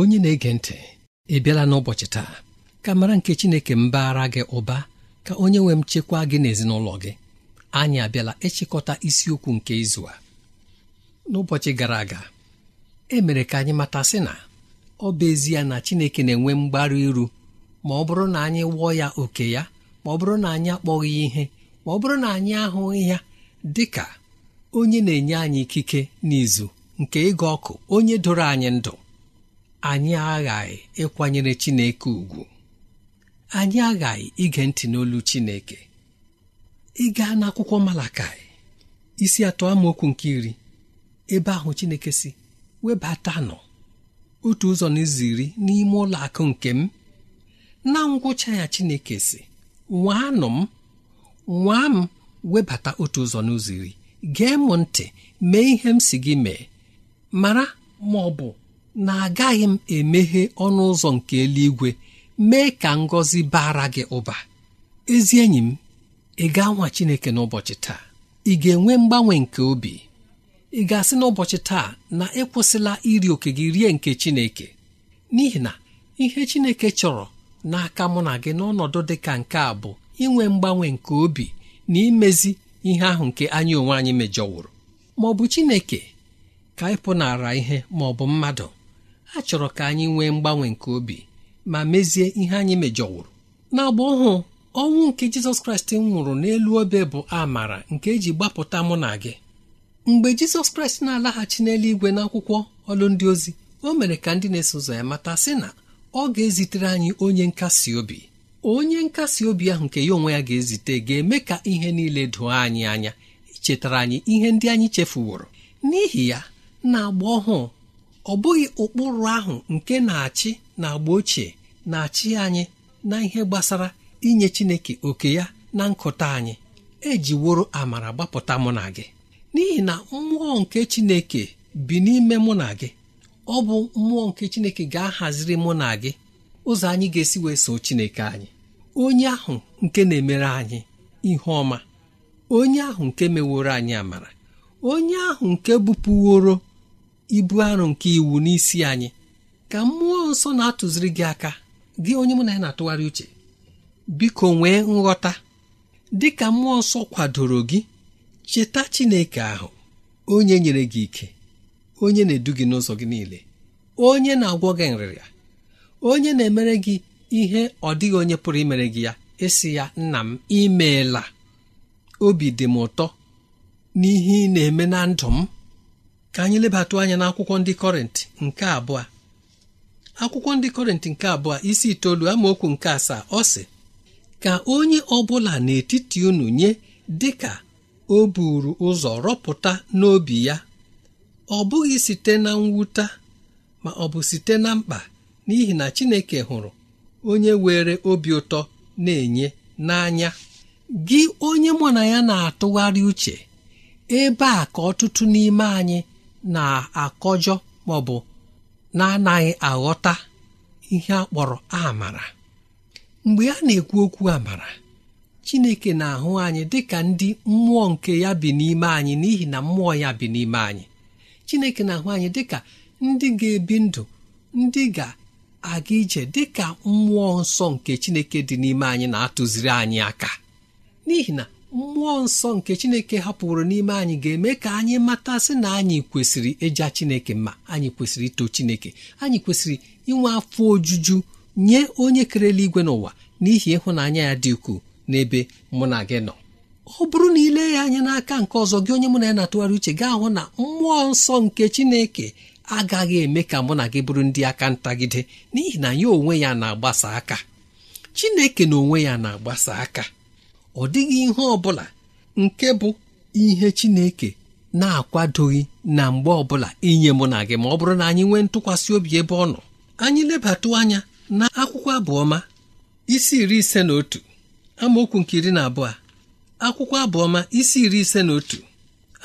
onye na-ege ntị ị bịala n'ụbọchị taa ka mara nke Chineke mbaara gị ụba ka onye nwe m chekwaa gị n'ezinụlọ gị anyị abịala ịchịkọta isiokwu nke izu a n'ụbọchị gara aga e mere ka anyị mata sị na ọ bụ ezie na Chineke na-enwe mgbaru iru ma ọ bụrụ na anyị wụọ ya oke ya ma ọ bụrụ na anyị akpọghị ihe ma ọ bụrụ na anyị ahụghị ya dị ka onye na-enye anyị ikike n'izu nke ịga ọkụ onye doro anyị ndụ anyị aghaghị ịkwanyere Chineke ugwu anyị aghaghị ige ntị n'olu Chineke ịga n'akwụkwọ Malakai isi atọ amaokwu nke iri ebe ahụ Chineke si nọ otu ụzọ n'ụzọ iri n'ime ụlọ akụ nke m na ngwụcha ya Chineke si nwaanụ m nwaa m webata otu ụzọ n'ụzọ iri gee m ntị mee ihe m si gị mee mara ma ọ bụ na agaghị m emeghe ọnụ ụzọ nke eluigwe mee ka ngọzi bara gị ụba ezi enyi m ị ga-anwa Chineke n'ụbọchị taa ị ga-enwe mgbanwe nke obi ị ga-asị n'ụbọchị taa na ịkwụsịla iri oke gị rie nke Chineke n'ihi na ihe Chineke chọrọ n'aka mụ na gị n'ọnọdụ dị ka nke a bụ inwe mgbanwe nke obi na imezi ihe ahụ nke anyị onwe anyị mejọwụrụ ma ọ bụ Chineke ka ịpụnara ihe ma ọ bụ mmadụ a chọrọ ka anyị nwee mgbanwe nke obi ma mezie ihe anyị mejọwụrụ n'agba ọhụụ ọnwụ nke jizọs kraịst nwụrụ n'elu obe bụ amara nke eji gbapụta mụ na gị mgbe jizọs kraịst na-alaghachi igwe na akwụkwọ ọlụndị ozi o mere ka ndị na-eso ụzọ ya mata sị na ọ ga-ezitere anyị onye nkasi obi onye nkasi obi ahụ nke ya onwe ya ga-ezite ga-eme ka ihe niile doo anyị anya chetara anyị ihe ndị anyị chefuworo n'ihi ya na agba ọhụụ ọ bụghị ụkpụrụ ahụ nke na-achị na agba ochie na-achị anyị na ihe gbasara inye Chineke oke ya na nkụta anyị ejiworo amara gbapụta mụ na gị n'ihi na mmụọ nke Chineke bi n'ime mụ na gị ọ bụ mmụọ nke Chineke ga-ahaziri mụ na gị ụzọ anyị ga-esi wee so Chineke anyị onye ahụ nke na-emere anyị ihe ọma onye ahụ nke meworo anyị amara onye ahụ nke bupụworo ibu arụ nke iwu n'isi anyị ka mmụọ nsọ na-atụziri gị aka gị onye mụ na ya na-atụgharị uche biko nwee nghọta dị ka mmụọ nsọ kwadoro gị cheta Chineke ahụ onye nyere gị ike onye na-edu gị n'ụzọ gị niile onye na-agwọ gị nrịrịa onye na-emere gị ihe ọ dịghị onye pụrụ imere gị ya ịsị ya nna m imeela obi dị m ụtọ n'ihe ị na-eme na ndụ m ka anyị lebatụ anya n'akwụkwọ ndị kọrịntị nke abụọ akwụkwọ ndị kọrịntị nke abụọ isi itoolu amaokwu nke asaa ọ sị ka onye ọbụla n'etiti unu nye dịka o buru ụzọ rọpụta n'obi ya ọ bụghị site na mwute ma ọ bụ site na mkpa n'ihi na Chineke hụrụ onye were obi ụtọ na-enye n'anya gị onye mụ na ya na-atụgharị uche ebe a ka ọtụtụ n'ime anyị na-akọjọ ma ọ bụ na-anaghị aghọta ihe a kpọrọ amara mgbe a na-ekwu okwu amara Chineke na-ahụ anyị ka ndị mmụọ nke ya bi n'ime anyị n'ihi na mmụọ ya bi n'ime anyị Chineke na-ahụ anyị dị ka ndị ga-ebi ndụ ndị ga-aga ije dị ka mmụọ nsọ nke Chineke dị n'ime anyị na-atụziri anyị aka n'ihi na mmụọ nsọ nke chineke hapụrụ n'ime anyị ga-eme ka anyị matasị na anyị kwesịrị ịja chineke ma anyị kwesịrị ito chineke anyị kwesịrị inwe afọ ojuju nye onye kerela igwe n'ụwa n'ihi ịhụnanya ya dị ukwuu n'ebe mụ na gị nọ ọ bụrụ na ile ya anya n'aka nke ọzọ gị onye mụ na ya na-atụgharị uche gị ahụ na mmụọ nsọ nke chineke agaghị eme ka mụ na gị bụrụ ndị aka ntagide n'ihi na ya onwe ya na-agbasa aka chineke na onwe ya na-agbasa aka ọ dịghị ihe ọ bụla nke bụ ihe Chineke na-akwadoghị na mgbe ọbụla inye mụ na gị ma ọ bụrụ na anyị nwee ntụkwasị obi ebe ọ nọ anyị lebatụ anya na akwụkwọ abụọma isi iri ise na otu amaokwu nke iri na abụọ akwụkwọ abụọma isi iri ise na otu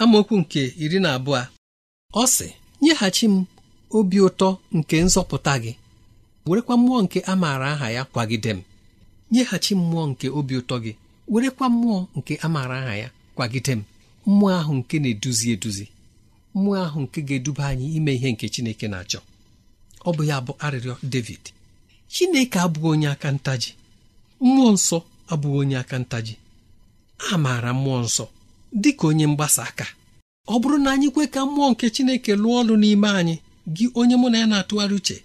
amaokwu nke iri na abụọ ọ sị nyeghachi m obi ụtọ nke nzọpụta gị werekwa mmụọ nke a maara aha ya kwagide m nyeghachi mmụọ nke obi ụtọ gị werekwa mmụọ nke a maara aha ya kwagide m mmụọ ahụ nke na-eduzi eduzi mmụọ ahụ nke ga-eduba anyị ime ihe nke chineke na-achọ ọ bụ ya bụ arịrịọ david chineke abụghị onye aka ntaji mmụọ nsọ abụghị onye aka ntaji a maara mmụọ nsọ dị ka onye mgbasa aka ọ bụrụ na anyị kwe ka mmụọ nke chineke lụọ ọrụ n'ime anyị gị onye mụ na ya na-atụgharị uche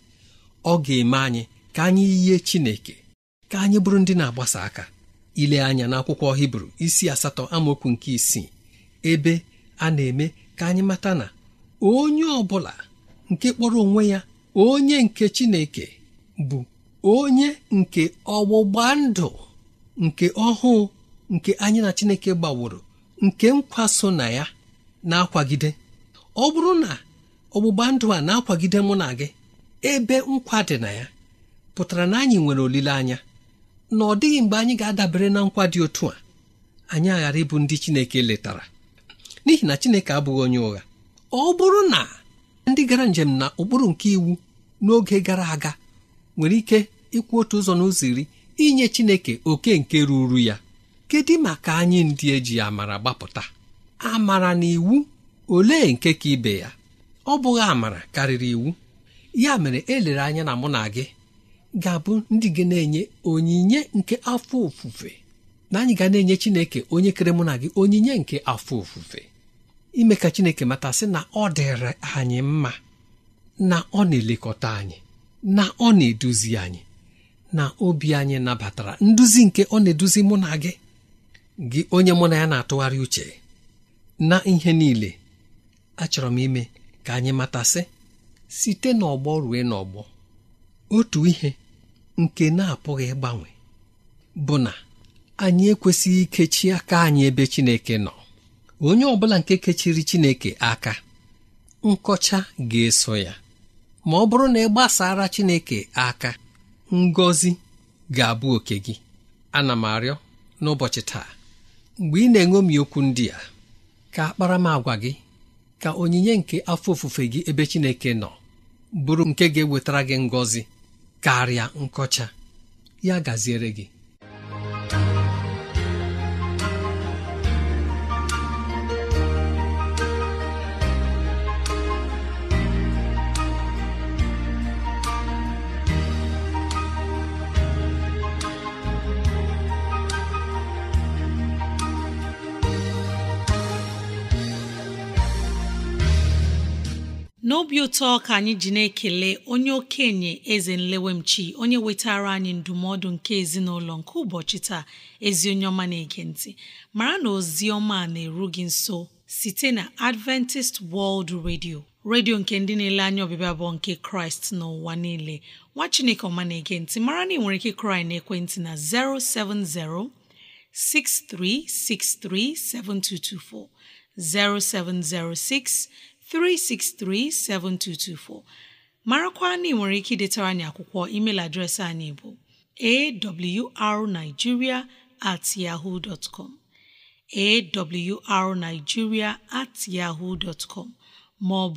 ọ ga-eme anyị ka anyị yie chineke ka anyị bụrụ ndị na-agbasa aka ile anya n'akwụkwọ hibru isi asatọ amaokwu nke isii ebe a na-eme ka anyị mata na onye ọ bụla nke kpọrọ onwe ya onye nke chineke bụ onye nke ọgbụgba ndụ nke ọhụụ nke anyị na chineke gbaworo nke nkwa so na ya na-akwagide ọ bụrụ na ọgbụgba ndụ a na-akwagide mụ na gị ebe nkwa dị na ya pụtara na anyị nwere olileanya na ọ dịghị mgbe anyị ga-adabere na nkwa dị otu a anyị aghara ịbụ ndị Chineke letara n'ihi na Chineke abụghị onye ụgha ọ bụrụ na ndị gara njem na ụkpụrụ nke iwu n'oge gara aga nwere ike ịkwụ otu ụzọ n'ụzọ iri inye Chineke oke nke ruru ya kedu maka anyị ndị eji amara gbapụta amara na iwu olee nke ka ibe ya ọ bụghị amara karịrị iwu ya mere elere anya na mụ na gị ga-abụ ndị gị na-enye onyinye nke afọ ofufe na anyị ga na-enye Chineke onye kere mụ na gị onyinye nke afọ ofufe ime ka Chineke mata sị na ọ dịrị anyị mma na ọ na-elekọta anyị na ọ na-eduzi anyị na obi anyị nabatara nduzi nke ọ na-eduzi mụ na gị gị onye mụ na ya na-atụgharị uche na ihe niile achọrọ m ime ka anyị matasị site n'ọgbọ rue n'ọgbọ otu ihe nke na-apụghị ịgbanwe bụ na anyị ekwesịghị ikechi aka anyị ebe Chineke nọ onye ọ bụla nke kechiri Chineke aka nkọcha ga-eso ya ma ọ bụrụ na ị gbasara Chineke aka ngọzi ga-abụ oke gị ana m arịọ n'ụbọchị taa mgbe ị na-eṅomi okwu ndị a ka akparamagwa gị ka onyinye nke afọ ofufe gị ebe Chineke nọ bụrụ nke ga-ewetara gị ngọzi karịa nkọcha ya gaziere gị obi ụtọ ka anyị ji na-ekele onye okenye eze nlewemchi onye wetara anyị ndụmọdụ nke ezinụlọ nke ụbọchị taa ezi onye ọma na-ege mara na ozi ọma na-eru gị nso site na Adventist World Radio redio nke ndị na-ele anya ọbịbịa bụ nke Kraịst n'ụwa niile nwa Chineke ọma na-ege mara na ị nwere ike kraị na ekwentị na 070 6363 7224 0706 3637224 marakwa na ị nwere ike idetara anyị akwụkwọ email adreesị anyị bụ awrnigeria at yahoo dot com awrnigeria at yahoo dot com ma ọ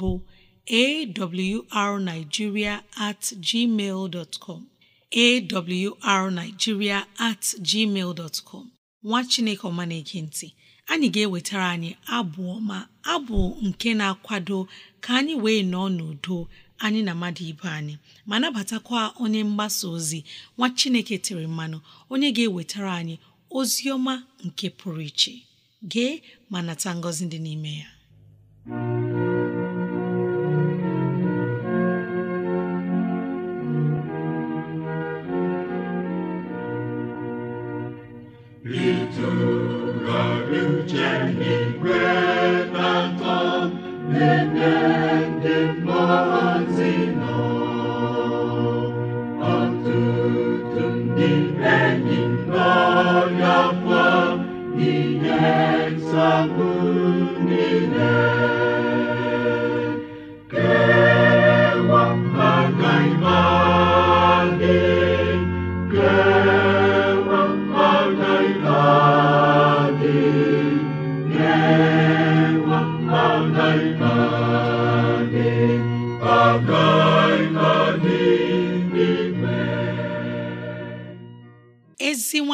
awrnigeria at gmail dot com awrnigeria at gmail dot com nwa chineke ọma na ntị anyị ga-ewetara anyị abụ ọma abụ nke na-akwado ka anyị wee nọọ n'udo anyị na mmadụ ibe anyị ma nabatakwa onye mgbasa ozi nwa Chineke tere mmanụ onye ga-ewetara anyị ozi ọma nke pụrụ iche gee ma nata ngọzi dị n'ime ya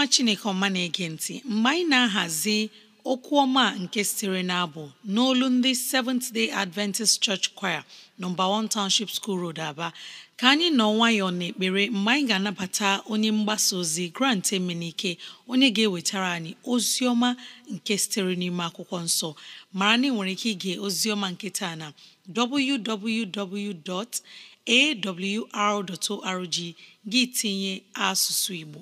chineke ọma na-ege ntị mgbe anyị na-ahazi okwu ọma nke sitere n'abụ n'olu ndị Seventh Day Adventist Church Choir nọmba 1 Township School Road Aba ka anyị nọ nwayọọ n'ekpere mgbe anyị ga-anabata onye mgbasa ozi Grant Emenike onye ga-ewetara anyị ozi ọma nke sitere n'ime akwụkwọ nsọ mara na nwere ike ige ozi ọma nke taa na www.awr.org gị tinye asụsụ Igbo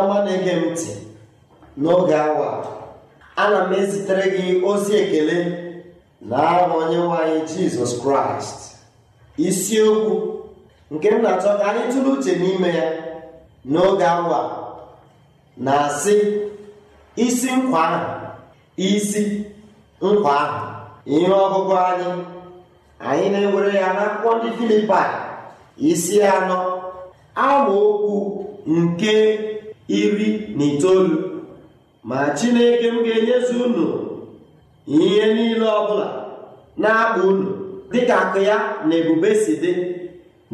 ọma na-ege m ntị n'oge awa ana m ezitere gị ozi ekele na aha onye nwanyị anyị jizọs kraịst isiokwu nke m na-achọ ka anyị tụrụ uche n'ime ya n'oge awa na-asị isi nkwa ahụ isi nkwa ahụ ihe ọgụgụ anyị anyị na-ewere ya n'akwụkwọ ndị Filipaị isi anọ amaokwu nke iri na itoolu ma chineke m ga-enyezu unu ihe niile ọbụla na-akpa unu dịka akụ ya na ebube si dị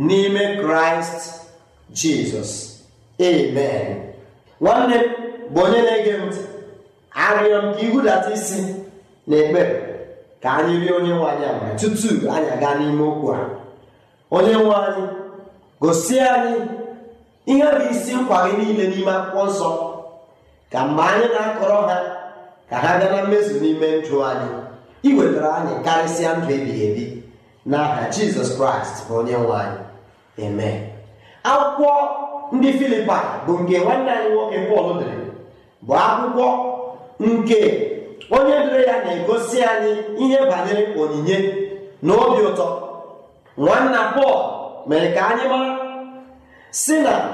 n'ime kraịst jizọs amen nwanne m bụ onye na-ege ntị arịọ m ka ihudata isi na ekpere ka anyị rie onye nwe anyị amara tutu anyị aga n'ime okwu a onye nwe anyị gosi anyị ihe bụ isi nkwa gị niile n'ime akwụkwọ nsọ ka mgbe anyị na-akọrọ ha ka ha gaa na mmezu n'ime ndụ anyị iwetara anyị karịsịa ndụ ebighị ebi n'aha jizọs kraịst bụ onye nwe anyị eme akwụkwọ ndị Filipa bụ nke nwanne anyị nwoke pọl dere bụ akwụkwọ nke onye dere ya na-egosi anyị ihe banyere onyinye na obi ụtọ nwanna pọl mere ka anyị mara si na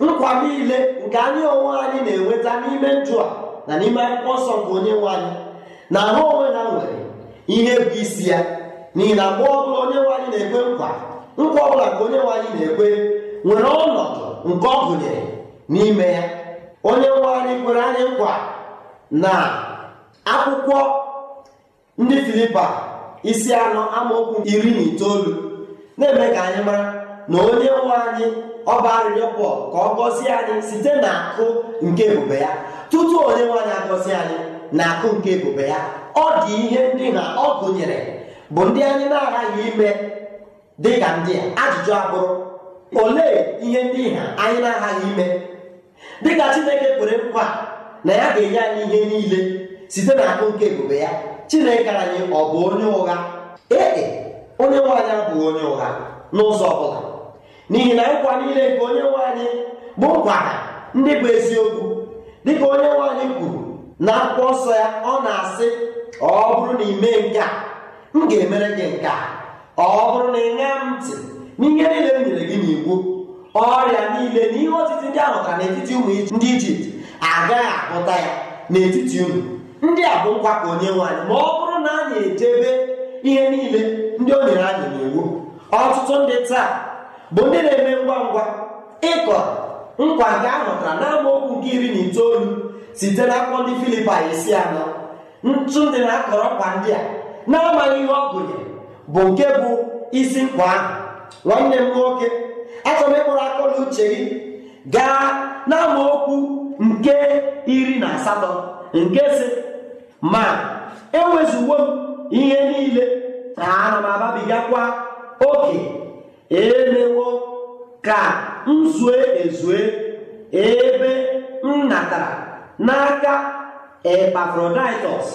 nkwa niile nke anyị onwe anyị na-enweta n'ime ndụ a na n'ime akwụkwọ nsọ nke onye nwe anyị na ha onwe ha nwere ihe bụ isi ya n'ihi na mgbe ọbụla onye nwe anyị na-ekwe nkwa nkwa ọbụla nke onye nwe anyị na-ekwe nwere ọnọdụ nke ọ gụnyere n'ime ya onye nwe anyị kwere anyị nkwa na akwụkwọ ndị filipa isi anọ amaokwu iri na itoolu na-eme ka anyị mara na onye nwe anyị ọba arịrịọ pọl ka ọ gọzie anyị site na akụ nke ebube ya tutu onye nwe anyị agọzie anyị na akụ nke ebube ya ọ dị ihe ndị na ọ gụnyere bụ ndị anyị na-aghaghị ime dị ka ndị a ajụjụ abụrụ olee ihe ndị ha anyị na-aghaghị ime dịka chineke kwere nkwa na ya ga-enye anyị ihe niile site na akụ nke ebube ya chineke anyị ọ bụ onye ụgha ee e, onye nwe anyị abụghị onye ụgha n'ụzọ ọ bụla n'ihi na nkwa niile nke onye nwe bụ nkwa ndị bụ eziokwu dịka onye nwe kwuru na akwụkwọ nsọ ya ọ na-asị ọ bụrụ na ị mee nke a m ga-emere gị nke a ọ bụrụ na ị m ntị n'ihe niile m nyere gị n'iwu ọrịa niile na ihe otiti ndị ahụ ka n'etiti ụmụ ndị ijipt agaghị apụta ya n'etiti ụmụ ndị a bụ nkwa ka onye nwe ma ọ bụrụ na a na echebe ihe niile ndị o nyere anyị n'iwu ọtụtụ ndị taa bụ ndị na-eme ngwa ngwa ịkọ nkwa nke a hụtara n'amaokwu nke iri na itoolu site n'akwụkwọ ndị Filipaị isi anọ ntụ ndị na-akọrọ kwa ndị a na-amaghị ihe ọ gụnyere bụ nke bụ isi nkwa ahụ nwanne m nwoke achọrọ ịkpụrụ akọla uche gị gaa n'amaokwu nke iri na asatọ nke si ma enwezuwo m ihe niile na ana m ababigakwa oke emewo ka m zue ezue ebe m natara n'aka epafroditọs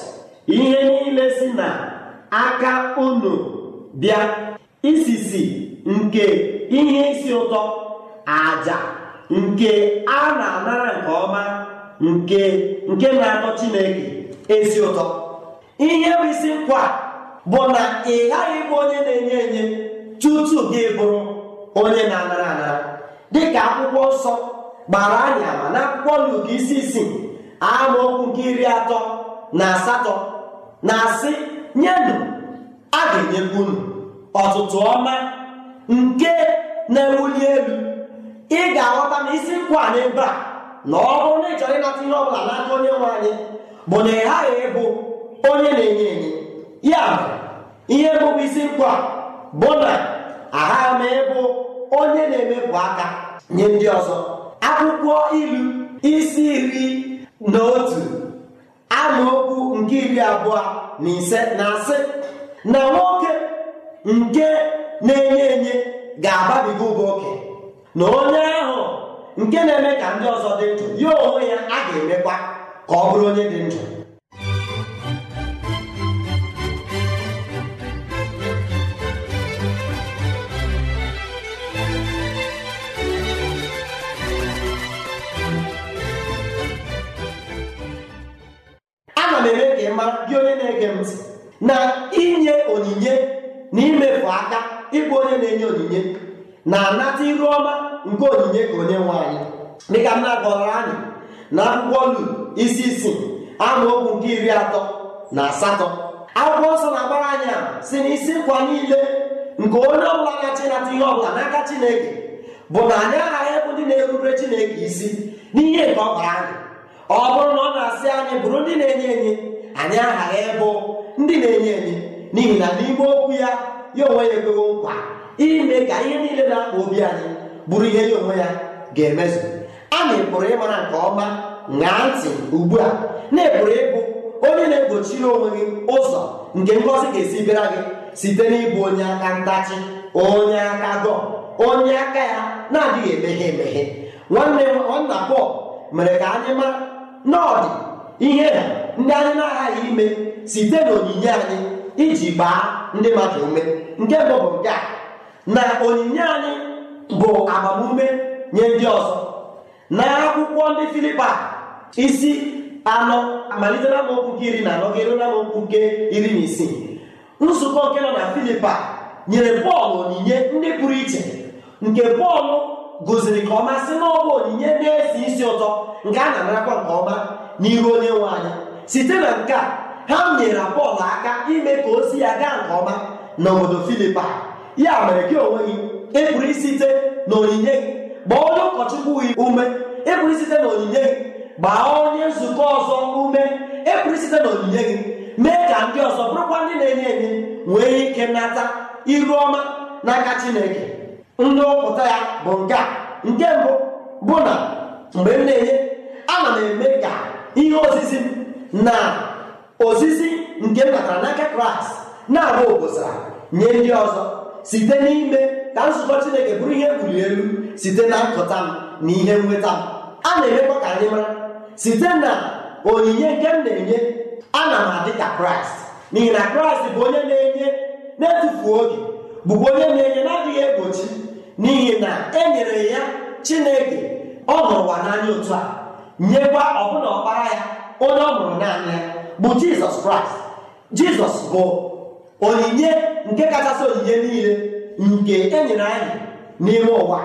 ihe niile si na aka unu bịa isisi nke ihe isi ụtọ aja nke a na-anara nke ọma nke nke na-atọ chineke ezi ụtọ ihe bụ isi nkwa bụ na ị ghaghị ịbụ onye na-enye enye tutu gị bụrụ onye na-anara anara dịka akwụkwọ nsọ gbara anyị ama na akwụkwọ Luk isi isii okwu nke iri atọ na asatọ na-asị nyenụ a ga-enyekwa unu ọtụtụ ọma nke na-ewuli elu ị ga-aghọta na isi nkwa n'ebe a na ọ bụrụ na ị chọrọ ịnata ihe ọ bụla n'aka onye nwe anyị bụ na ị ghaghị ịbụ onye na-enye enye ya ihe mbụbụ isi nkwa bụ na aha ma ịbụ onye na-emepụ aka nye ndị ọzọ akwụkwọ ilu isi iri na otu amaokwu nke iri abụọ na ise na-asị na nwoke nke na-enye enye ga-ababiga ụba oke na onye ahụ nke na-eme ka ndị ọzọ dị ndụ ya onwe ya a ga-emekwa ka ọ bụrụ onye dị ndụ na-ege ntị na inye onyinye na imefu aka ịbụ onye na-enye onyinye na-anata iru ọma nke onyinye ka onye nwe anyị dịka m na-agọrọ anyị na akwụkwọ Luk isi isii amaokwu nke iri atọ na asatọ akwụkwọ nsọ na-agbara anyị a si na isi nkwa niile nke onye ọbụla na-achị nata ihe ọbụla n'aka Chineke bụ na anyị aghaghị ịbụ ndị na-erubere Chineke isi n'ihe nke ọ bara anyị ọ bụrụ na ọ na-asị anyị bụrụ ndị na-enye enye anyị aghara ịbụ ndị na-enye enye n'ihi na n'ime okwu ya ya onwe ya ekweghị nkwa ime ka ihe niile na-akpa obi anyị bụrụ ihe ya onwe ya ga-emezu anyị pụrụ ịmara nke ọma ṅaa ntị ugbu a na-epụrụ ịbụ onye na-egbochiri onwe gị ụzọ nke ngọzi ga-esi bịara gị site n'ịbụ onye aka ntachi onye aka gọ onye aka ya na-adịghị emeghe emeghe nwanne nwanna Pọl mere ka anyị mara na ihe ha ndị anyị na-aghaghị ime site n'onyinye anyị iji gbaa ndị mmadụ ume nke bụ bụ nke a na onyinye anyị bụ agbamume nye ndị ọzọ na akwụkwọ ndị Filipa isi anọ malite na amaokwu nke iri na anọ gịrụ na amaokwu nke iri na isii nzukọ nke nọ na Filipa nyere bọọlụ onyinye ndị pụrụ iche nke bọọlụ gụziri ka ọma si na onyinye na-esi isi ụtọ nke a na-anarakwa nke ọma n'ihu onye nwe anyị site na nke a ha nyere Pọl aka ime ka ozi ya gaa nke ọma n'obodo Filipa ya mere gị onwe gị ịpụrụ e na onyinye gị gbaa onye ụkọchukwu gị ume ịpụrụ e na onyinye gị gbaa onye nzukọ ọzọ ume ịpụrụ e na onyinye gị mee ka ndị ọzọ bụrụkwa ndị na-enye enye nwee ike nata iru ọma n'aka Chineke ndụpụta ya bụ nke a nke mbụ bụ na mgbe m na-enye ana m eme ka ihe osisi na ozizi nke mbatara n'aka kraịst na-abụ obosa nye ndị ọzọ site n'ime ka nzukọ chineke bụrụ ihe mbuli elu site na ntụta m na ihe nweta m a na-emekwa ka anyị mara site na onyinye nke m na-enye ana m adị ka kraịst n'ihi na kraịst bụ onye na-enye na-etufu oge bụkwa onye na-enye na-adịghị egbochi n'ihi na e nyere ya chineke ọ hụrụ n'anya otu a nyekwa ọbụna ọkpara ya onye ọ bụrụ naanị ya bụ jizọs kraịst jizọs bụ onyinye nke kachasị onyinye niile nke enyere anyị n'ime ụwa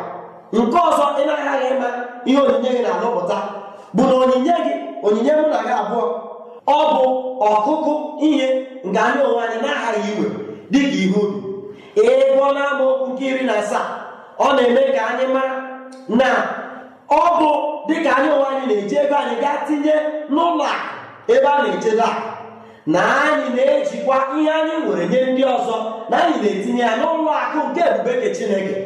nke ọzọ ị na-aghaghị ịma ihe onyinye gị na-alụpụta bụ na onyinye gị onyinye mụ na gị abụọ ọ bụ ọkụkụ ihe nke anyị onwe anyị na-aghaghị igwe dịka ihe ubi ebe na amụ nke iri na asaa ọ na-eme ka anyị mara na ọ bụ dịka anyị onwe anyị na-eji ego anyị gaa tinye n'ụlọ akụ ebe a na-echebe akụ na anyị na-ejikwa ihe anyị nwere nye ndị ọzọ na anyị na-etinye ya n'ụlọ akụ nke ebubeke chineke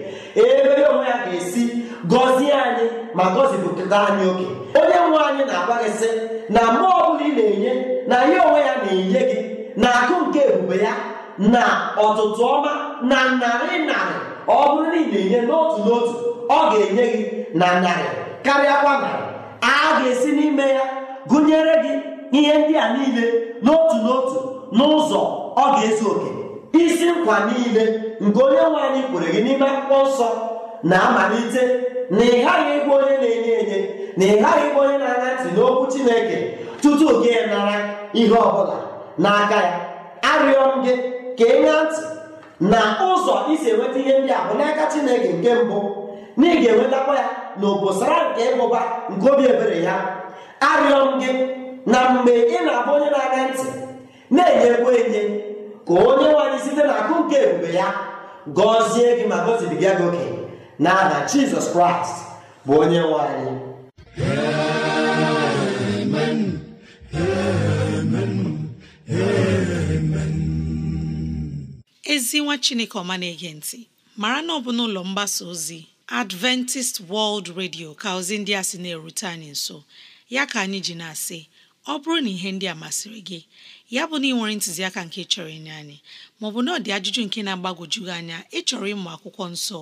ebe ya onwe ya ga-esi gọzie anyị ma gọzipụta anyị oke onye nwe anyị na-agwa gị sị na mgbe ọbụla ị na-enye na ya onwe ya na-enye gị na akụ nke ebube ya na ọtụtụ ọma na narị narị ọ bụrụ na ị na-enye n'otu n'otu ọ ga-enye gị na narị karịa na a ga-esi n'ime ya gụnyere gị ihe ndị a niile n'otu n'otu n'ụzọ ọ ga-ezu oke isi nkwa niile nke onye nwe anyị kwere gị n'ime akwụkwọ nsọ na-amalite na ị ghaghị ịbụ onye na-enye enye na ịghaghị ghaghị ịbụ onye na-anya ntị n'okwu Chineke tutu gị nara ihe ọbụla n'aka ya arịọ m gị ka ị ntị na ụzọ isi enweta ihe ndị a bụ n'aka Chineke nke mbụ na ị ga-enwetakwa ya na obosara nke ịmụba nke obi ebere ya arịọ m gị na mgbe ị na-abụ onye na-aga ntị na ekwe enye ka onye nwanyị site na akụ nke ebube ya gọzie gị ma gọzibiga gị oke na aha jizọs kraịst bụ onye nwanyị ezi nwa chineke ọma na-ege ntị mara na ọ bụ n'ụlọ mgbasa ozi Adventist World Radio ka ozi ndị a sị na-erute anyị nso ya ka anyị ji na-asị ọ bụrụ na ihe ndị a masịrị gị ya bụ na ị nwere ntụziaka nke chọrọ inye anyị maọbụ na ọ dị ajụjụ nke na-agbagwoju anya ịchọrọ ịmụ akwụkwọ nsọ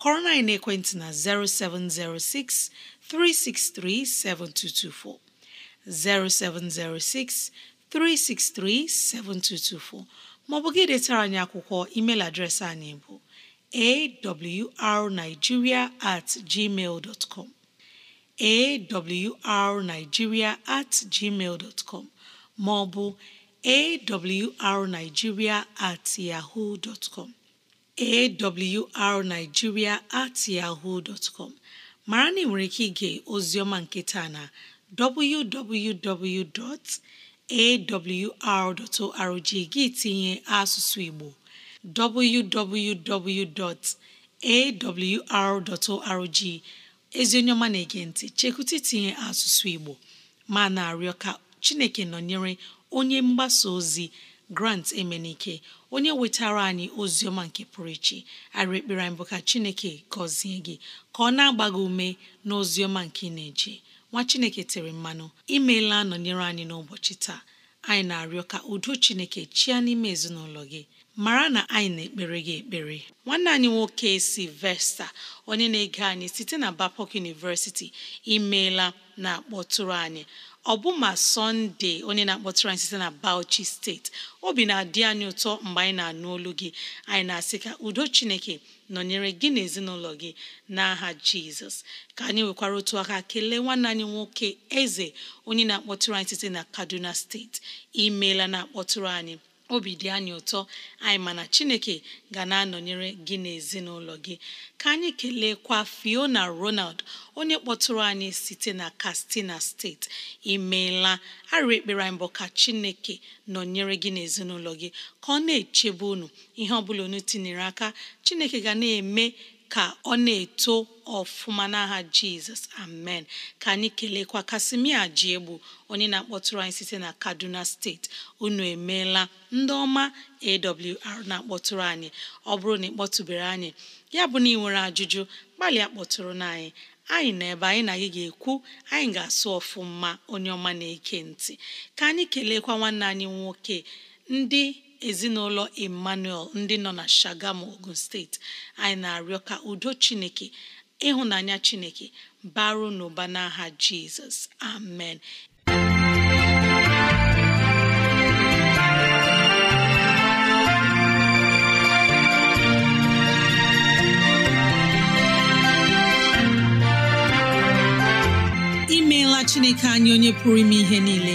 kọrọ na ekwentị na 0706 363 7224, 0706 363 7224 maọbụ gị detara anyị akwụkwọ email adreesị anyị bụ awrnigeria at gmail dot com awrnigeria at gmail dot com ma ọ bụ awrnigeria at yahoo dot com awrnigeria at yahoo dot com mara na ị nwere ike ige oziọma nketa na www.awr.org gị tinye asụsụ Igbo www.awr.org ezi onye ọma na-ege ntị chekwụta itinye asụsụ Igbo ma na-arịọ ka Chineke nọnyere onye mgbasa ozi Grant Emenike onye wetara anyị ozi ọma nke pụrụ iche arị ekpere anyị bụ ka Chineke gọzie gị ka ọ na-agba ume na ọma nke ị na-eje nwa Chineke tere mmanụ imeela nọnyere anyị n'ụbọchị taa anyị na-arịọ ka udo Chineke chịa n'ime ezinụlọ gị mara na anyị na-ekpere gị ekpere nwanne anyị nwoke vesta onye na-ege anyị site na Babcock University imeela na-akpọtụrụ anyị ọbụma sọnde onye na-akpọtụrụ anyị site na Bauchi steeti obi na-adị anyị ụtọ mgbe anyị na-anụ olu gị anyị na-asị ka udo Chineke nọnyere gị na ezinụlọ gị n'aha Jizọs ka anyị nwekwara otu aka kelee nwanne anyị nwoke eze onye na-akpọtụrụ anyị site na Kaduna steeti imeela na-akpọtụrụ anyị obi dị anyị ụtọ anyị mana chineke ga na-anọnyere gị na ezinụlọ gị ka anyị kelekwa Fiona Ronald onye kpọtụrụ anyị site na kastina steeti imeela arịrị ekpere anyị mbụ ka chineke nọnyere gị na ezinụlọ gị ka ọ na-echebe unu ihe ọ bụla unu tinyere aka chineke ga eme ka ọ na-eto ọfụma n'aha jizọs amen ka anyị kelekwa kasimia ji egbu onye na-akpọtụrụ anyị site na kaduna steeti unu emeela ndị ọma awr na-akpọtụrụ anyị ọ bụrụ na ịkpọtụbere anyị ya bụ na ị nwere ajụjụ gbalịa kpọtụrụ na anyị anyị na ebe anyị na gị ga-ekwu anyị ga-asụ ọfụma onye ọma na-eke ntị ka anyị keleekwa nwanne anyị nwoke ndị ezinụlọ emmanuel ndị nọ na shagamu ogun steeti anyị na-arịọ ka udo chineke ịhụnanya chineke baru n'ụba n'aha jizọs amen imeela chineke anyị onye pụrụ ime ihe niile